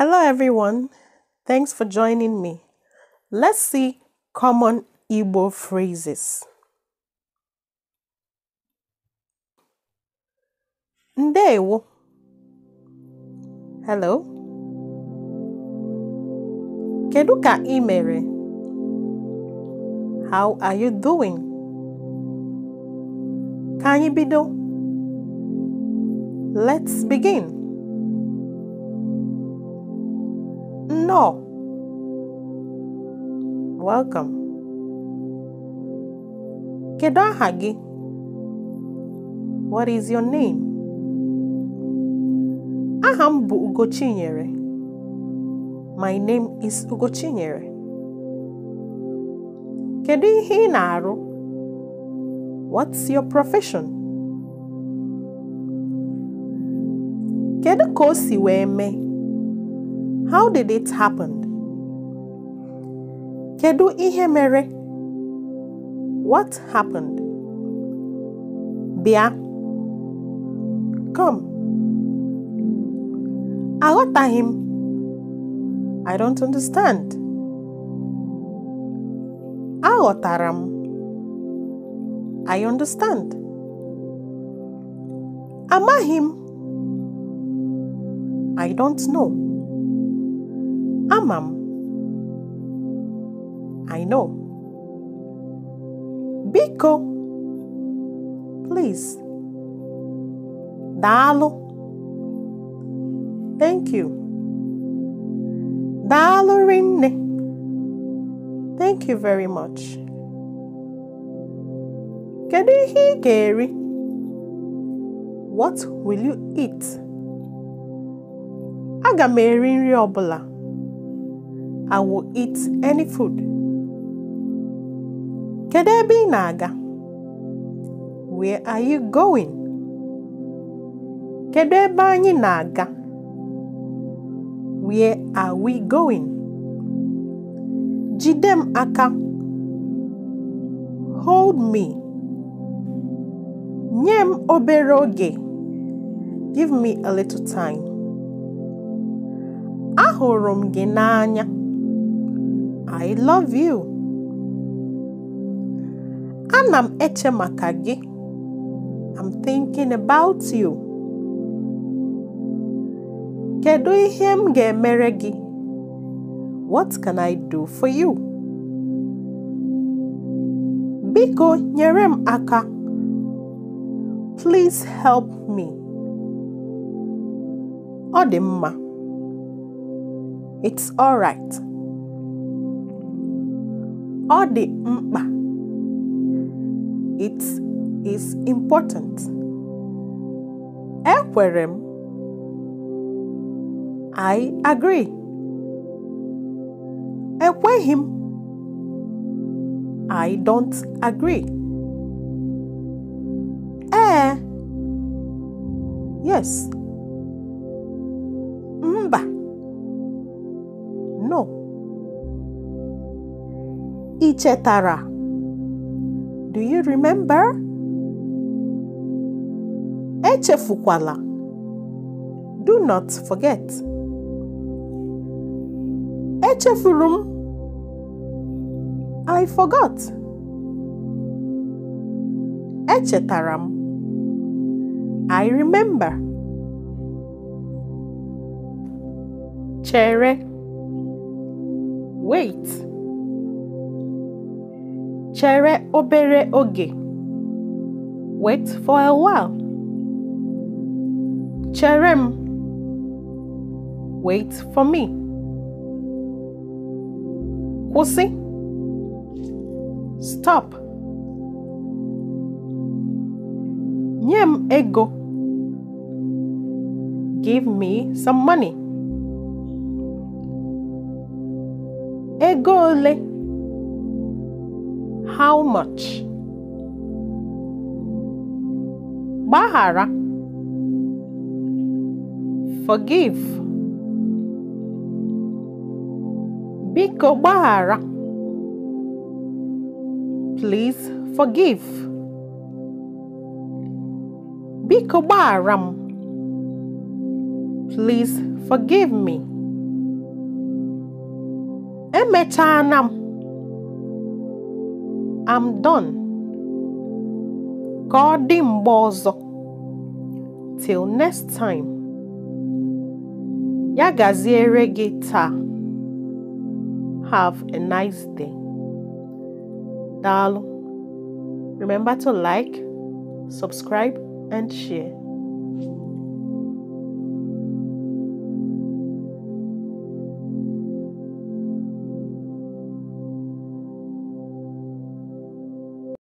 Hello, everyone. Thanks for joining me. Let's see common Igbo phrases. Ndewo. Hello. Kedu ka imere? How are you doing? Ka anyị bido? Let's begin. No. Welcome. Kedu aha gị? What is your name? Aha m bụ Ugochinyere. My name is Ugochinyere. Kedu ihe ị na-arụ? What's your profession? Kedu ka o si wee mee? How did it happen? Kedu ihe mere? What happened? Bịa. Come. Aghọtaghị I I don't understand. Aghọtara I understand. Amahim. I I don't know. Amam. I know. Biko. Please. Dalo. Thank you. Dalo rinne. Thank you very much. Kedu ihe hear Gary? What will you eat? Aga m eri nri bụla. I will eat any food. Kedu ebe ị na-aga? Where are you going? Kedu ebe anyị na-aga? Where are we going? Jide m aka. Hold me. Nye m obere oge. Give me a little time. Ahụrụ m gị n'anya. I love you. and i eche etche makagi. i I'm thinking about you. Kedu ihe m ga-emere gị? What can I do for you? Biko nyere m aka. Please help me. Ọ dị mma. It's alright ọ dị mkpa it is important ekwere m I agree ekweghị m I don't agree ee eh. yes Ị chetara? Do you remember? Echefukwala. Do not forget. Echefuru m. I forgot. Echetara m. I remember. Chere. Wait. Chere obere oge. Wait for a while. Chere m. Wait for me. Kwụsị. Stop. Nye m ego. Give me some money. Ego ole? how much? Bahara. Forgive. Biko Bahara. Please forgive. Biko Baharam. Please forgive me. Emetanam. I'm done. Godimbozo. Till next time. Ya gita. Have a nice day. Dalu. Remember to like, subscribe, and share.